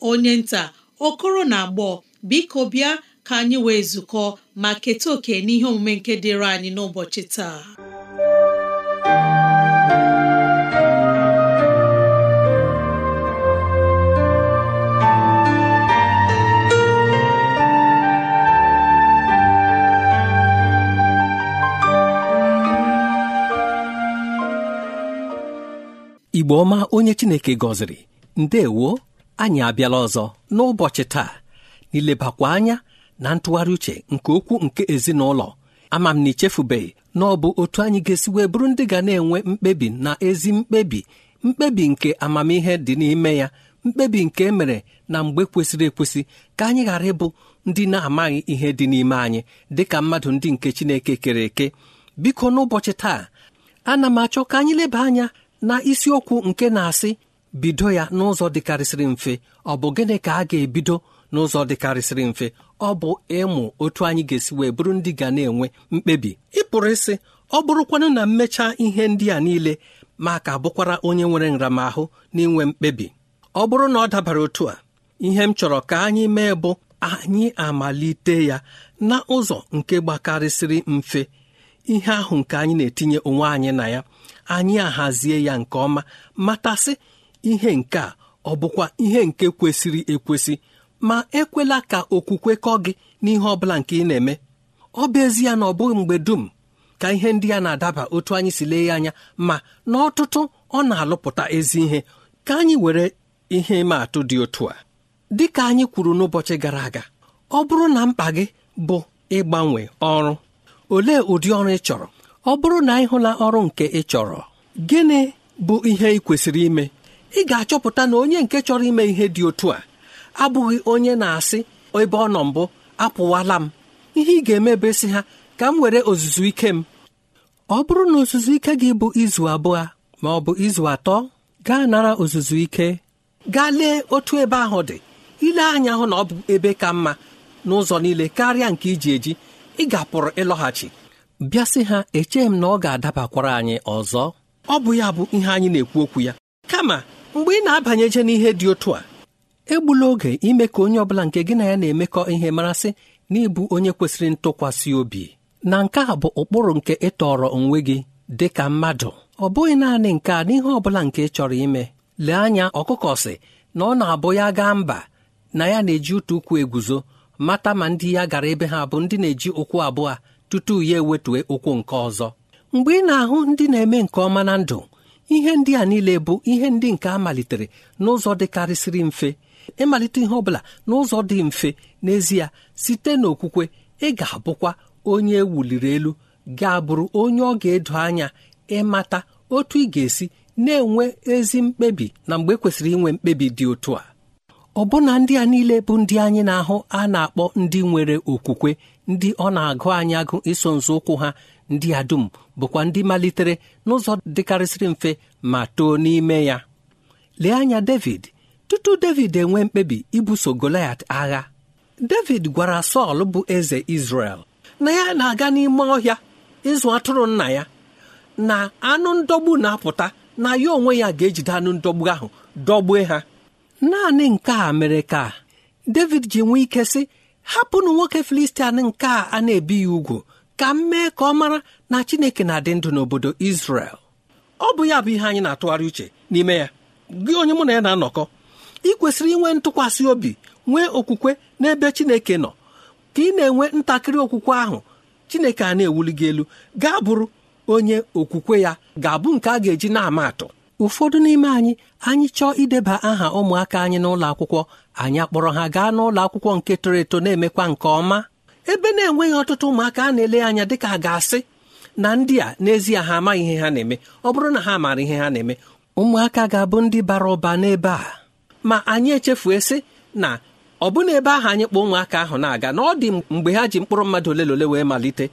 onye nta okoro na agbọ biko bịa ka anyị wee zukọ ma keta oke n'ihe omume nke dịịrị anyị n'ụbọchị taa Igbo ọma onye Chineke gọziri ndewo anyị abịala ọzọ n'ụbọchị taa n'ilebakwa anya na ntụgharị uche nke okwu nke ezinụlọ ama m na ichefubeghị na ọ bụ otu anyị ga-esi wee bụrụ ndị ga na-enwe mkpebi na ezi mkpebi mkpebi nke amamihe dị n'ime ya mkpebi nke e mere na mgbe kwesịrị ekwesị ka anyị ghara ịbụ ndị na-amaghị ihe dị n'ime anyị dị ka mmadụ ndị nke Chineke kere eke biko n'ụbọchị taa ana m achọ ka anyị leba anya na isiokwu nke na-asị bido ya n'ụzọ dịkarịsịrị mfe ọ bụ gịnị ka a ga-ebido n'ụzọ dịkarịsịrị mfe ọ bụ ịmụ otu anyị ga-esi wee bụrụ ndị ga na-enwe mkpebi ịpụrụ isi. ịsị ọ bụrụkwanụ na mmecha ihe ndị a niile ma ka bụkwara onye nwere nramahụ n'inwe mkpebi ọ bụrụ na ọ dabara otu a ihe m chọrọ ka anyị mee bụ anyị amalite ya na ụzọ nke gbakarịsịrị mfe ihe ahụ nke anyị na-etinye onwe anyị na ya anyị ahazie ya nke ọma matasị ihe nke a ọ bụkwa ihe nke kwesịrị ekwesị ma ekwela ka okwukwe kọ gị n'ihe ọ bụla nke ị na-eme ọ bụ ezie na ọ bụghị mgbe dum ka ihe ndị a na-adaba otu anyị si lee ya anya ma n'ọtụtụ ọ na-alụpụta ezi ihe ka anyị were ihe ịma atụ dị otu a dị ka anyị kwuru n'ụbọchị gara aga ọ bụrụ na mkpa gị bụ ịgbanwe ọrụ olee ụdị ọrụ ị chọrọ ọ bụrụ na ị hụla ọrụ nke ị chọrọ gịnị bụ ihe ị kwesịrị ime ị ga-achọpụta na onye nke chọrọ ime ihe dị otu a abụghị onye na-asị ebe ọ nọ mbụ apụwala m ihe ị ga-eme bụ ha ka m were ozuzu ike m ọ bụrụ na ozuzu ike gị bụ izu abụọ ma ọ bụ izu atọ gaa nara ozuzu ike gaa lee otu ebe ahụ dị ile anya hụ na ọ bụ ebe ka mma n'ụzọ niile karịa nke iji eji ị ga ịlọghachi bịa sị ha echeghị m na ọ ga-adabakwara anyị ọzọ ọ bụ ya bụ ihe anyị na-ekwu okwu ya kama mgbe ị na-abanyeje n'ihe dị otu a egbula oge ime ka onye ọbụla nke gị na ya na-emekọ ihe marasị na ịbụ onye kwesịrị ntụkwasị obi na nke a bụ ụkpụrụ nke ịtọrọ onwe gị dị ka mmadụ ọ bụghị naanị nke a n'ihe ọ bụla nke ị chọrọ ime lee anya ọkụkọ si na ọ na-abụ ya gaa mba na ya na-eji ụtụ ụkwụ eguzo mata ma ndị ya gara ebe ha bụ ndị na-eji ụkwụ abụọ tutu ya ewetue ụkwụ nke ọzọ mgbe ị na-ahụ ndị na-eme nke ọma na ndụ ihe ndị a niile bụ ihe ndị nke a malitere n'ụzọ dịkarịsịrị mfe ịmalite ihe ọbụla n'ụzọ dị mfe n'ezie site n'okwukwe ị ga-abụkwa onye e wuliri elu ga-abụrụ onye ọ ga-edo anya ịmata otu ị ga-esi na-enwe ezi mkpebi na mgbe e kwesịrị inwe mkpebi dị otu a ọbụna ndị a niile bụ ndị anyị na-ahụ a na-akpọ ndị nwere okwukwe ndị ọ na-agụ anyị agụ iso nzọụkwụ ha ndị a dum bụkwa ndị malitere n'ụzọ dịkarịsịrị mfe ma too n'ime ya lee anya David tutu David enwe mkpebi ibuso Goliat agha David gwara Sọl bụ eze Izrel na ya na-aga n'ime ọhịa ịzụ atụrụ nna ya na anụ ndọgbu na-apụta na ya onwe ya ga-ejide anụ ndọgbu ahụ dọgbue ha naanị nke a mere ka David ji nwee ike sị hapụnụ nwoke Filistia nke a a na-ebi ya ugwu ka m mee ka ọ mara na chineke na-adị ndụ n'obodo izrel. ọ bụ ya bụ ihe anyị na-atụgharị uche n'ime ya gị onye mụ na ya na-anọkọ ị kwesịrị inwe ntụkwasị obi nwee okwukwe n'ebe chineke nọ ka ị na-enwe ntakịrị okwukwe ahụ chineke a na-ewuli gị elu gaa bụrụ onye okwukwe ya ga-abụ nke a ga-eji na-ama atụ ụfọdụ n'ime anyị anyị chọọ ideba aha ụmụaka anyị n'ụlọ akwụkwọ anyị akpọrọ ha gaa n'ụlọ akwụkwọ nke toro eto na-emekwa nke ọma ebe na-enweghị ọtụtụ ụmụaka a na-ele anya dị a ga-asị na ndị a n'ezie ha amaghị ihe ha na-eme ọ bụrụ na ha maara ihe ha na-eme ụmụaka ga-abụ ndị bara ụba n'ebe a ma anyị echefuo sị na ọ bụ na ebe ahụ anyị kpọọ ụmụaka ahụ na-aga na ọ dị mgbe ha ji mkpụrụ mmadụ ole na ole wee malite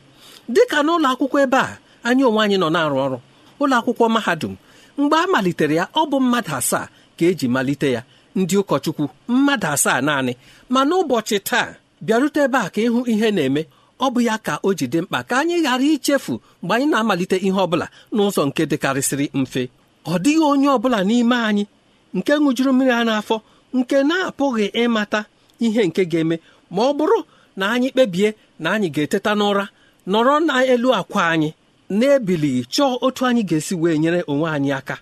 dịka n'ụlọ akwụkwọ ebe a anyị onwe anyị nọ na-arụ ọrụ ụlọ akwụkwọ mahadum mgbe a malitere ya ọ bụ mmadụ asaa ka eji malite ya ndị ụkọchukwu mmadụ asaa naanị ma n'ụbọchị taa bịarute ebe a ka ịhụ ihe na-eme ọ bụ ya ka o ji dị mkpa ka anyị ghara ichefu mgbe anyị na-amalite ihe ọ bụla n'ụzọ nke dịkarịsịrị mfe ọ dịghị onye ọ bụla n'ime anyị nke ṅụjuru mmiri a n'afọ nke na-apụghị ịmata ihe nke ga-eme ma ọ bụrụ na anyị kpebie na anyị ga-eteta n'ụra nọrọ n'elu akwa anyị na-ebilighị chọọ otu anyị ga-esi wee nyere onwe anyị aka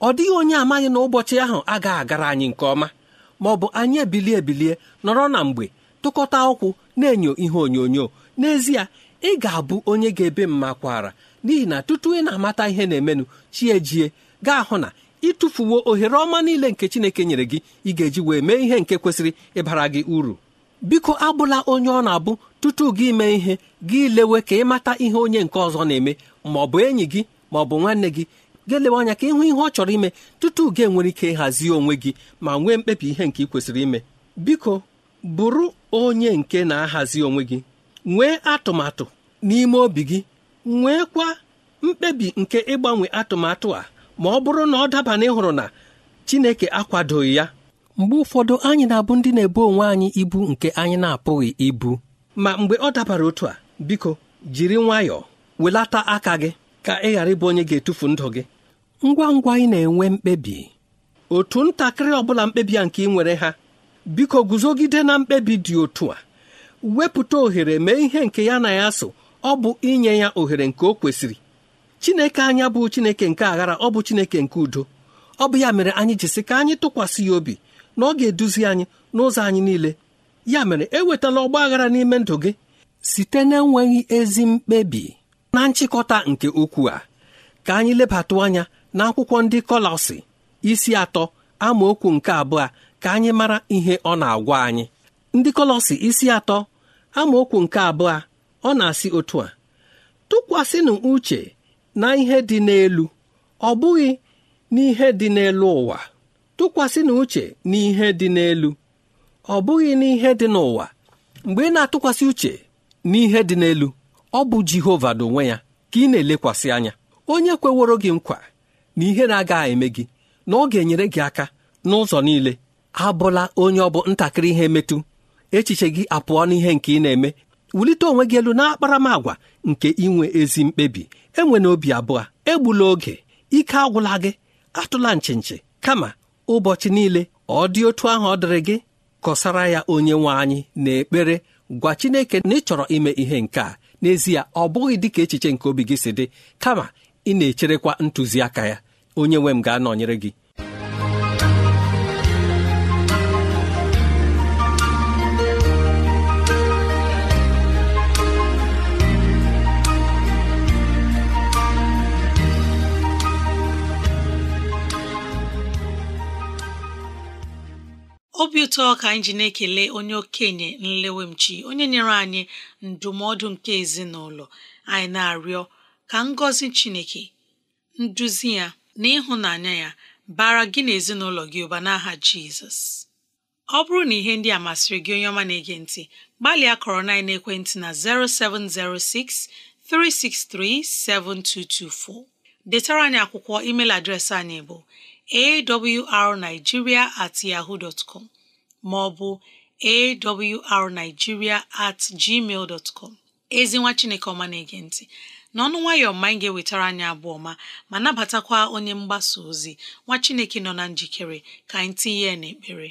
ọ dịghị onye amaghị na ụbọchị ahụ agaghị agara anyị nke ọma ma ọ bụ anyị ebilie ebilie nọrọ na mgbe tụkọta ụkwụ na-enyo ihe onyonyo n'ezie ị ga-abụ onye ga-ebe mma kwara n'ihi na tutu ị na-amata ihe na-emenụ chi ejie gaa hụ na ịtụfuwo ohere ọma niile nke Chineke nyere gị ị ga-eji wee mee ihe nke kwesịrị ịbara gị uru biko abụla onye ọ na-abụ tutu gị mee ihe gị lewe ka ịmata ihe onye nke ọzọ na-eme ma ọ bụ enyi gị ma ọ bụ nwanne gị ga-elewe anya ka ịhụ ihe ọ chọrọ ime tutu gị enwere ike ịhazi onwe gị ma nwee mkpebi ihe nke ị kwesịrị ime biko bụrụ onye nke na-ahazi onwe gị nwee atụmatụ n'ime obi gị nweekwa mkpebi nke ịgbanwe atụmatụ a ma ọ bụrụ na ọ daba na ịhụrụ na Chineke akwadoghị ya mgbe ụfọdụ anyị na-abụ ndị na-ebu onwe anyị ibu nke anyị na-apụghị ibu ma mgbe ọ dabara otu a biko jiri nwayọọ welata aka gị ka ị ghara ịbụ onye ga-etufu ndụ gị ngwa ngwa ị na-enwe mkpebi otu ntakịrị ọ bụla mkpebi a nke ị nwere ha biko guzogide na mkpebi dị otu a wepụta ohere mee ihe nke ya na ya so ọ bụ inye ya ohere nke o kwesịrị chineke anya bụ chineke nke aghara ọ bụ chineke nke udo ọ bụ ya mere anyị jisi ka anyị tụkwasị ya obi na ọ ga-eduzi anyị n'ụzọ anyị niile ya mere ewetala ọgba aghara n'ime ndụ gị site na-enweghị ezi mkpebi na nchịkọta nke ukwuu a ka anyị lebata anya na akwụkwọ ndị kọlọsị isi atọ amaokwu nke abụọ ka anyị mara ihe ọ na-agwa anyị ndị kọlọsi isi atọ amaokwu nke abụọ ọ na-asị otu a tụkwasịnụ uche na ihe dị n'elu ọ bụghị n'ihe dị n'elu ụwa tụkwasịnụ uche na ihe dị n'elu ọ bụghị n'ihe dị n'ụwa mgbe ị na-atụkwasị uche n'ihe dị n'elu ọ bụ Jehova n'onwe ya ka ị na-elekwasị anya onye kweworo gị nkwa na ihe na-agaghị eme gị na ọ ga-enyere gị aka n'ụzọ niile abụla onye ọ bụ ntakịrị ihe metu echiche gị apụọ n'ihe nke ị na-eme wulite onwe gị elu n'akparamagwa nke inwe ezi mkpebi enwe obi abụọ egbula oge ike agwụla gị atụla nchinchi kama ụbọchị niile ọ dị otu ahụ ọ dịrị gị kọsara ya onye nwe anyị na ekpere gwa Chineke na ị chọrọ ime ihe nke a n'ezie ọ bụghị dịka echiche nke obi gị si dị kama ị na-echerekwa ntụziaka ya onye nwe m ga-anọnyere gị obi ụtọ ka anyị ji na-ekele onye okenye nlewemchi onye nyere anyị ndụmọdụ nke ezinụlọ anyị na-arịọ ka ngọzi Chineke nduzi ya na ịhụnanya ya bara gị na ezinụlọ gị ụba n'aha Jizọs ọ bụrụ na ihe ndị a masịrị gị onye ọma na-ege ntị gbalịa kọrọ na ekwentị na 0706 363 7224 detara anyị akwụkwọ email adreesị anyị bụ awrnigeria at yahoo dot com ma ọ bụ awrnigeria at gmail dot com ezi nwa Chineke ọma na-ege ntị n'ọnụ nwayọọ ma anyị ga-ewetara anyị abụọ ọma ma nabatakwa onye mgbasa ozi nwa Chineke nọ na njikere ka anyị tinye ya n'ekpere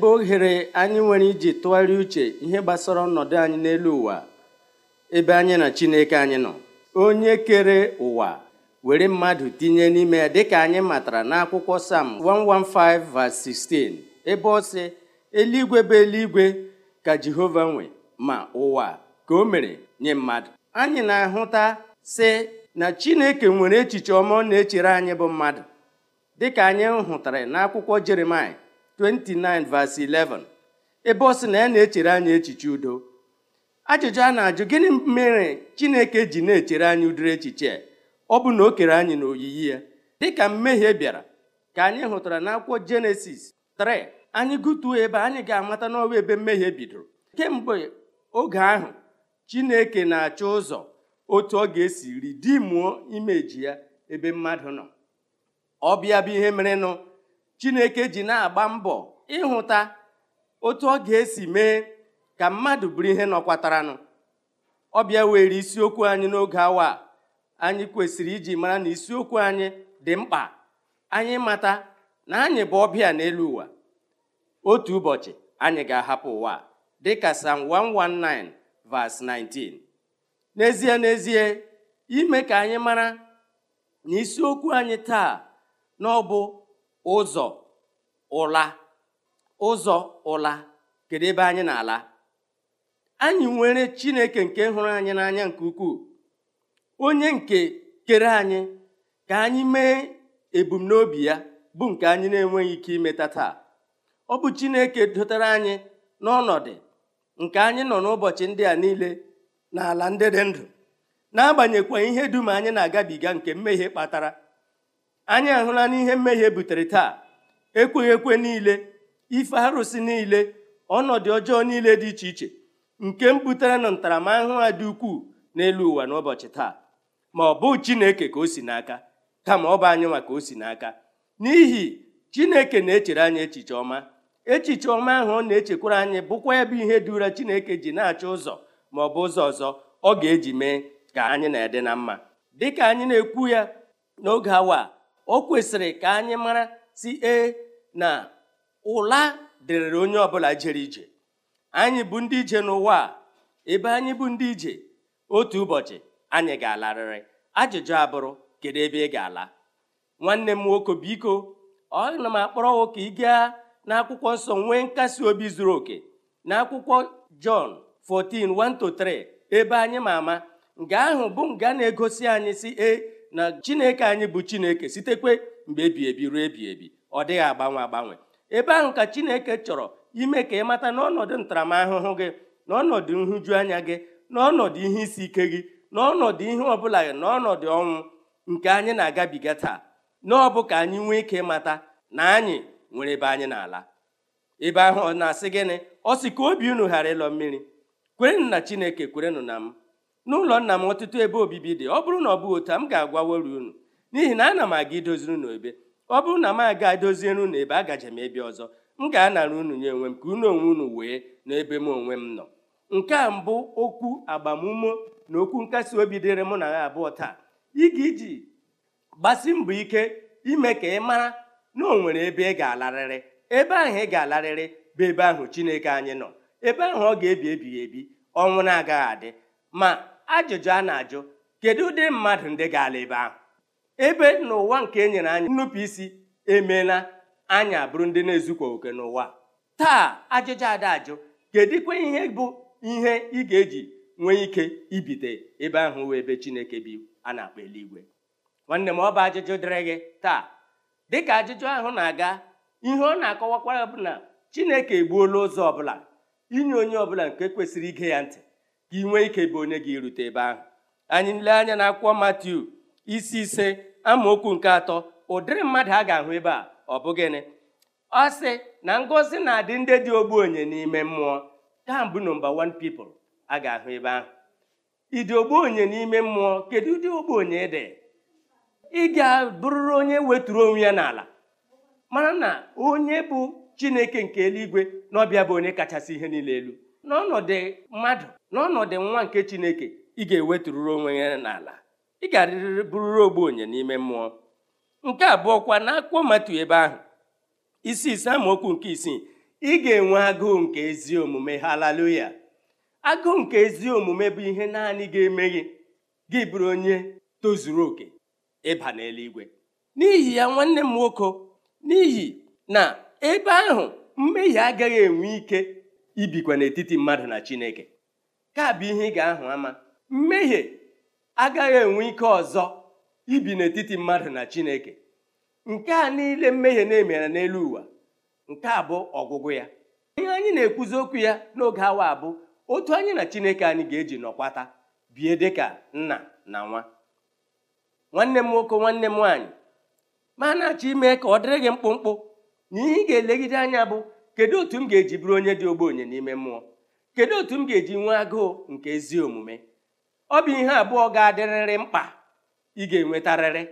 bụ ohere anyị nwere iji tụgharịa uche ihe gbasara ọnọdụ anyị n'elu ụwa ebe anyị na Chineke anyị nọ onye kere ụwa were mmadụ tinye n'ime ya dịka anyị matara n'akwụkwọ Sam 115:16 ebe ọ sị eluigwe bụ eluigwe ka Jehova nwe ma ụwa ka o mere nye mmadụ anyị na-ahụta sị na Chineke nwere echiche ọma ọ na-echere anyị bụ mmadụ dịka anyị hụtara n'akwụkwọ jeremaya 29 verse 11 ebe ọ sị na ya na-echere anyị echiche udo ajụjụ a na-ajụ gịnị mere Chineke ji na-echere anyị udiri echiche ọ bụ na o kere anyị n'oyiyi ya dịka mmehie bịara ka anyị hụtara n'akwụkwọ Jenesis 3 anyị gụtuo ebe anyị ga-amata n'ọwa ebe mmehie bidoro kemgbe oge ahụ Chineke na-achọ ụzọ otu ọ ga-esi ridimuo imeji ya ebe mmadụ nọ ọ bịa bụ ihe merenụ chineke ji na-agba mbọ ịhụta otu ọ ga-esi mee ka mmadụ bụrụ ihe nọkwataranụ ọ bịa were isiokwu anyị n'oge awa anyị kwesịrị iji mara na isiokwu anyị dị mkpa anyị mata na anyị bụ ọbịa n'elu ụwa otu ụbọchị anyị ga-ahapụ ụwa dịka Psalm 119 verse 19 n'ezie n'ezie ime ka anyị mara na isiokwu anyị taa na ụzọ ụla ụzọ ụla kedu ebe anyị na-ala anyị nwere chineke nke hụrụ anyị n'anya nke ukwuu onye nke kere anyị ka anyị mee ebumnobi ya bụ nke anyị na-enweghị ike imeta taa ọ bụ chineke dụtara anyị n'ọnọdụ nke anyị nọ n'ụbọchị ndị a niile n'ala ndị dị ndụ n'agbanyeghịkwa ihe dum anyị na-agabiga nke mmehie kpatara anyị ahụla n'ihe mmehie butere taa ekweghị ekwe niile ife arụsị niile ọnọdụ ọjọọ niile dị iche iche nke m butere na ntaramahụhụ a dị ukwuu n'elu ụwa n'ụbọchị taa ma ọ bụ Chineke ka o si n'aka kama ọ bụ anyị maka ka o si n'aka n'ihi Chineke na-echere anyị echiche ọma echiche ọma ahụ ọ na-echekwara anyị bụkwa ebe ihe dị ụra Chineke ji na-achọ ụzọ ma ọ bụ ụzọ ọzọ ọ ga-eji mee ka anyị na-ede na mma dịka anyị na-ekwu ya n'oge awa o kwesịrị ka anyị mara si ee na ụla dịrịrị onye ọbụla jere ije anyị bụ ndị ije n'ụwa a ebe anyị bụ ndị ije otu ụbọchị anyị ga-alarịrị ajụjụ abụrụ kedu ebe ị ga-ala nwanne m nwoke biko ọ na m akpọrọ ka ị gaa n'akwụkwọ nsọ nwee nkasi obi zuru oke n'akwụkwọ Jọn 14:1-3 ebe anyị ma ama nga ahụ bụ nga na-egosi anyị si e na chineke anyị bụ chineke sitekwe mgbe ebi ebi ruo ebi ebi ọ dịghị agbanwe agbanwe ebe ahụ ka chineke chọrọ ime ka ị mata n'ọnọdụ ntaramahụhụ gị n'ọnọdụ nhụju anya gị n'ọnọdụ ihe isi ike gị n'ọnọdụ ihe ọbụla gị n'ọnọdụ ọnwụ nke anyị na-agabiga taa n'ọbụ ka anyị nwee ike mata na anyị nwere ebe anyị na-ala ebe ahụ ọ na-asị gịnị ọ sị ka obi unu ghara ịlọ mmiri kwerenụ na chineke kwerenụ na m n'ụlọ nna m ọtụtụ ebe obibi dị ọ bụrụ na ọ bụ otu a m ga-agwawori unu n'ihi na ana m aga idoziri unu ebe ọ bụrụ na m aga doziere unu ebe agaje m ebe ọzọ m ga-anara unu nye onwe m ka unu onwe unu wee n'ebe m onwe m nọ nke a mbụ okwu agbamume na okwu nkasi obi dịrị mụ na ha abụọ taa ịga iji gbasi mbọ ike ime ka ị mara na o nwere ebe ị ga-alarịrị ebe ahụ ị ga-alarịrị bụ ebe ahụ Chineke anyị nọ ebe ahụ ọ ga-ebi ebighị ebi ọnwụ na-agaghị adị ma ajụjụ a na-ajụ kedu ụdị mmadụ ndị ga-ala ebe ahụ ebe n'ụwa nke e nyere anyị nnupụisi emeela anyị abụrụ ndị na-ezukwa oke n'ụwa taa ajụjụ ada ajụ kedụkwa ihe bụ ihe ị ga-eji nwee ike ibite ebe ahụ wee ebe Chineke bi a na-akpọ eluigwe nwanne m ọ bụ ajụjụ dịrị gị taa dịka ajụjụ ahụ na-aga ihe ọ na-akọwakwara bụ na Chineke egbuola ụzọ ọbụla inye onye ọbụla nke kwesịrị ige ya ntị ka ị nwee ike bụ onye gị rute ebe ahụ anyị nle anya na akwụkwọ Matiu isi ise amaokwu nke atọ ụdịrị mmadụ a ga-ahụ ebe a ọ bụ gịnị ọ sị na ngọzi na-adị ndị dị onye n'ime mmụọ taa mbụ nọmba 1 people a ga-ahụ ebe ahụ ịdị onye n'ime mmụọ kedu ụdị ogbenye dị ị ga-abụrụrụ onye weturu onwe ya n'ala mara na onye bụ Chineke nke eluigwe na ọbịa bụ onye kachasị ihe niile elu n'ọnọdụ mmadụ n'ọnọdụ nwa nke chineke ị ga-ewetụrụrụ onwe ya n'ala ị ga-arịrịrị bụrụrụ ogbenye n'ime mmụọ nke abụọ kwa akpụkpọ matu ebe ahụ isi ise amaokwu nke isii ị ga-enwe agụụ nke ezi omume halaluya agụụ nke ezi omume bụ ihe naanị ga-eme gị gị bụrụ onye tozuru oke ịba n'eluigwe n'ihi ya nwanne m nwoke n'ihi na ebe ahụ mmehie agaghị enwe ike ibikwa n'etiti mmadụ na Chineke ka bụ ihe ị ga-ahụ ama mmehie agaghị enwe ike ọzọ ibi n'etiti mmadụ na Chineke nke a niile mmehie na-emere n'elu ụwa nke a bụ ọgwụgwụ ya ihe anyị na-ekwuzi okwu ya n'oge awa bụ otu anyị na Chineke anyị ga-eji nọkwata bie dịka nna na nwa nwanne m nwoke nwanne m nwaanyị ma na-achọ ime ka ọ dịrị gị mkpụmkpụ na ihe ị ga-elegide anya bụ kedu otu m ga-eji bụrụ onye dị ogbenye n'ime mmụọ kedu otu m ga-eji nwee agụụ nke ezi omume ọ bụ ihe abụọ ga-adịrịrị mkpa ị ga-enwetarịrị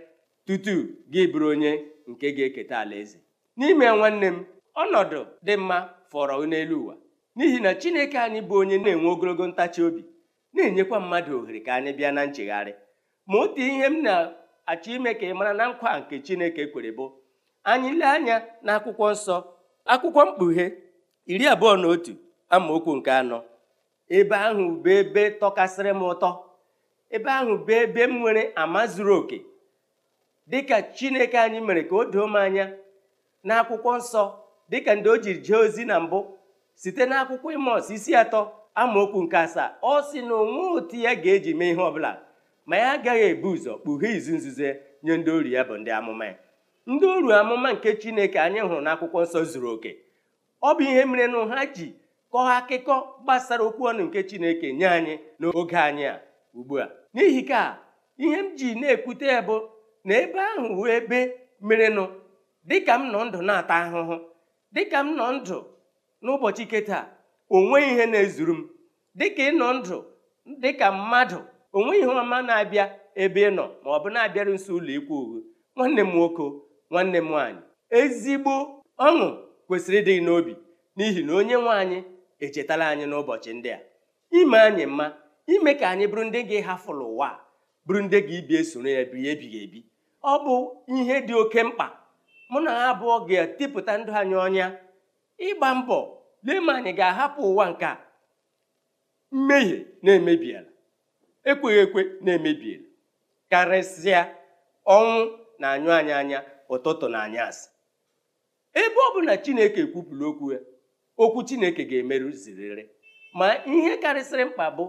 tutu gị bụrụ onye nke ga-eketa ala eze. n'ime nwanne m ọnọdụ dị mma fọrọ n'elu ụwa n'ihi na chineke anyị bụ onye na-enwe ogologo ntachi obi na-enyekwa mmadụ ohere ka anyị bịa na nchegharị ma otu ihe m na-achọ ime ka ị mara na nkwa nke chineke kwere bụ anyị lee anya n'akwụkwọ nsọ akwụkwọ mkpughe iri abụọ na otu amaokwu nke anọ ebe ahụ bụ ebe tọkasịrị m ụtọ ebe ahụ bụ ebe m nwere ama zuru oke dịka chineke anyị mere ka o doo m anya na akwụkwọ nsọ dịka ndị o jiri jee ozi na mbụ site na akwụkwọ ịmọs isi atọ amaokwu nke asaa ọ sị na onwe otu ya ga-eji mee ihe ọbụla ma ya agaghị ebu ụzọ kpughe izu nzuzo nye ndị ori ya bụ ndị amụma ya ndị uru amụma nke chineke anyị hụrụ n'akwụkwọ nsọ zuru oke ọ bụ ihe mere ha ji kọọ akụkọ gbasara okwu ọnụ nke chineke nye anyị n'oge anyị a ugbu a n'ihi ka ihe m ji na-ekwute ya bụ na ebe ahụ wee ebe merenụ dịka m nọ ndụ na-ata ahụhụ dịka m nọ ndụ n'ụbọchị keta onweghị ihe na-ezuru m dịka ịnọ ndụ dịka mmadụ onwe ihe ọma na-abịa ebe ị nọ ma ọ bụ na-abịarụ nso ụlọ ikwu uhu nwanne m nwoke nwanne m nwaanyị ezigbo ọṅụ kwesịrị ịdị n'obi n'ihi na onye nwe anyị echetala anyị n'ụbọchị ndị a ime anyị mma ime ka anyị bụrụ ndị ga-ahafụlụ ụwa bụrụ ndị ga-ibi esoro ya bi ebighị ebi ọ bụ ihe dị oke mkpa mụ na ha abụọ ga-etipụta ndụ anyị ọnya ịgba mbọ lee ma anyị ga-ahapụ ụwa nke a mmehie na-emebiela ekweghị ekwe na-emebiela karịsịa ọnwụ na anyụ anyị anya ụtụtụ na anyasị ebe ọ bụla Chineke kwupụrụ okwu ya okwu Chineke ga-emerụzirịrị ma ihe karịsịrị mkpa bụ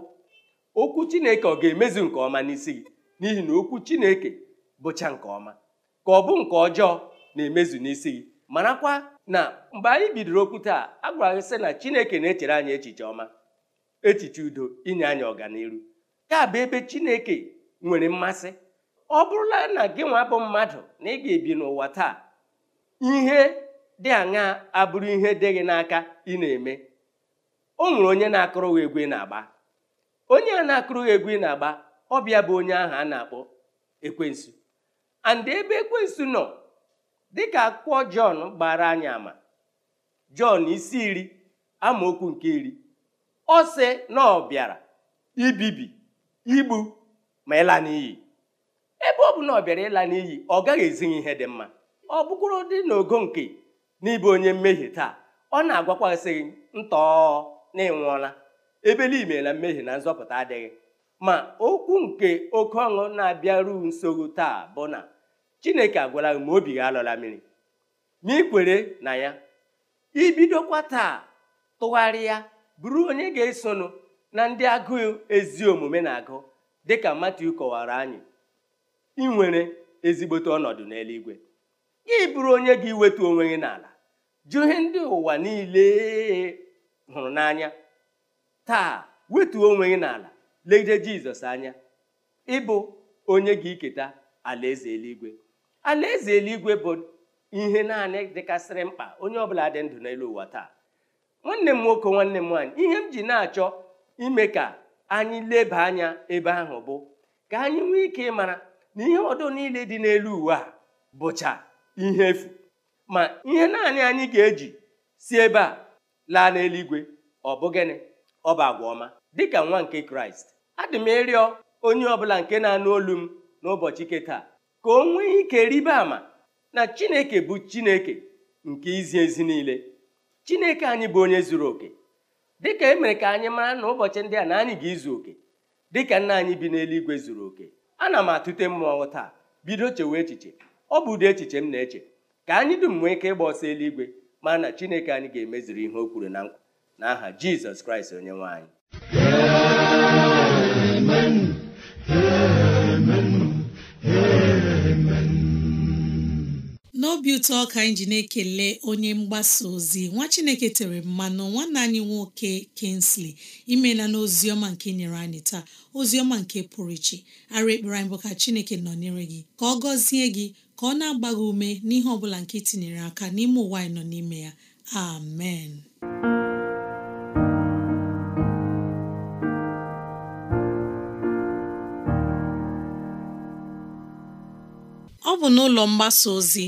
okwu Chineke ọ ga-emezu nke ọma n'isi gị n'ihi na okwu Chineke bụcha nke ọma ka ọ bụ nke ọjọọ na-emezu n'isi gị marakwa na mgbe anyị bidoro okwu taa a gwara gị sị na Chineke na-echere anyị echiche ọma echiche udo inye anyị ọganiru ya bụ ebe Chineke nwere mmasị ọ bụrụla na gị nwa bụ mmadụ na ị ga-ebi n'ụwa taa ihe dị aṅa abụrụ ihe dị gị n'aka ị na-eme o nwere onye na akụrụghị egwu ị na-agba onye a na akụrụghị egwu ị na-agba ọbịa bụ onye ahụ a na-akpọ ekwensu and ebe ekwensu nọ dịka akwụkwọ jọn gbara anyị ama jọn isi iri amaokwu nke iri ọ sị na ọ bịara ibibi igbu ma ịla n'iyi ebe ọ bụ na ọ bịara ịla n'iyi ọ gaghị ezi ihe dị mma ọ bụkwụrụ dị n'ogo nke n'ịbụ onye mmehie taa ọ na-agwakwasị ntọọ na ịnwụọla ebeliime na mmehie na nzọpụta adịghị ma okwu nke oke ọṅụ na-abịaru nsogbu taa bụ na chineke agwara gị ma obi gị alọla mmiri ma ikwere na ya ibidokwa taa tụgharịa bụrụ onye ga-esonụ na ndị agụụ ezi omume na-agụ dịka Matiu kọwara anyị ị nwere ezigbote ọnọdụ n'eluigwe gị bụrụ onye gị iwetu onwe gị n'ala jụ ihe ndị ụwa niile hụrụ n'anya taa wetuo onwe gị n'ala legide jizọs anya ịbụ onye gị iketa alaeze eluigwe alaeze eluigwe bụ ihe naanị dịkasịrị mkpa onye ọbụla dị ndụ n'elu ụwa taa nwanne m nwoke nwanne m nwaanyị ihe m ji na-achọ ime ka anyị leba anya ebe ahụ bụ ka anyị nwee ike ịmara na ihe ọdụ niile dị n'elu uwe a bụcha ihe efu ma ihe naanị anyị ga-eji si ebe a laa n'eluigwe ọ bụ gịnị ọ bụ agwa ọma dịka nwa nke kraịst adị m ịrịọ onye ọbụla nke na-anụ olu m n'ụbọchị ike ka o nwee ike rịba ama na chineke bụ chineke nke izi ezi niile chineke anyị bụ onye zuru oke dịka emere ka anyị mara na ụbọchị ndị a na anyị ga-izu oke dịka nna anyị bi n'eluigwe zuru oke ana m atụte mmụọ taa bido chewe echiche ọ bụ ụdị echiche m na-eche ka anyị dum nwee ike ịgba ọsọ eluigwe ma na chineke anyị ga-emeziri ihe o kwuru na nkwa n'aha aha jizọs kraịst onye nwe anyị obi ụtọ ka anyị ji na-ekele onye mgbasa ozi nwa chineke tere mmanụ nwanne anyị nwoke Kingsley imela na oziọma nke nyere anyị taa oziọma nke pụrụ iche ara ekpere anyị bụ ka chineke nọnyere gị ka ọ gọzie gị ka ọ na-agba gị ume n'ihe ọbụla bụla nke itinyere aka n'ime ụwa anyị nọ n'ime ya amen ọ bụ n'ụlọ mgbasa ozi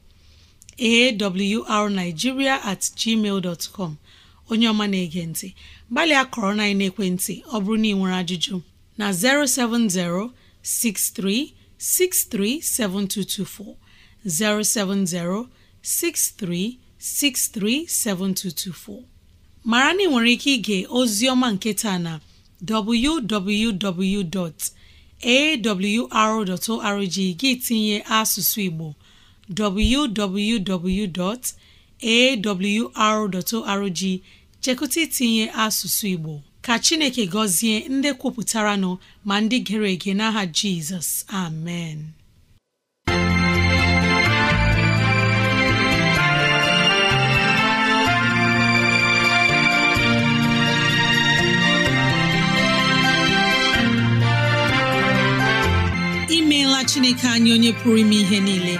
awrnigeria at onye ọma na-ege ntị gbalịa kọrọ na ekwentị ọ bụrụ na ị nwere ajụjụ na 070 mara na ị nwere ike ige ozi ọma nke na www.awr.org gị tinye asụsụ Igbo www.awr.org chekụta itinye asụsụ Igbo ka Chineke gọzie ndị kwupụtara nọ ma ndị gere ege n'aha Jizọs amen imeela Chineke anyị onye pụrụ ime ihe niile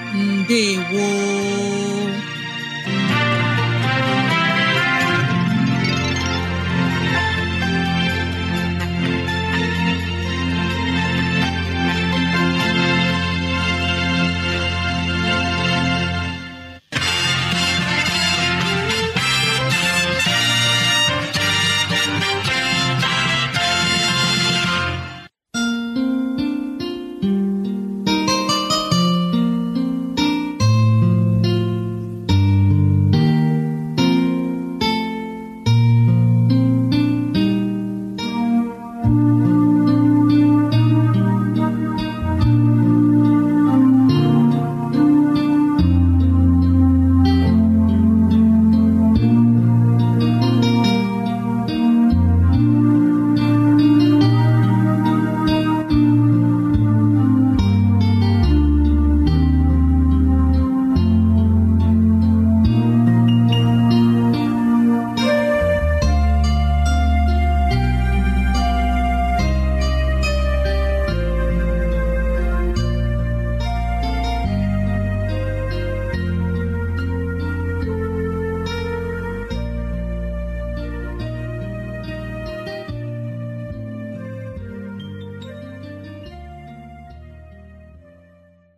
ndewo